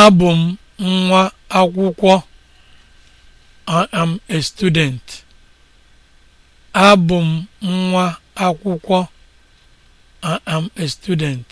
Abụ nwa akwụkwọ. I am a student. m nwa akwụkwọ. am a student.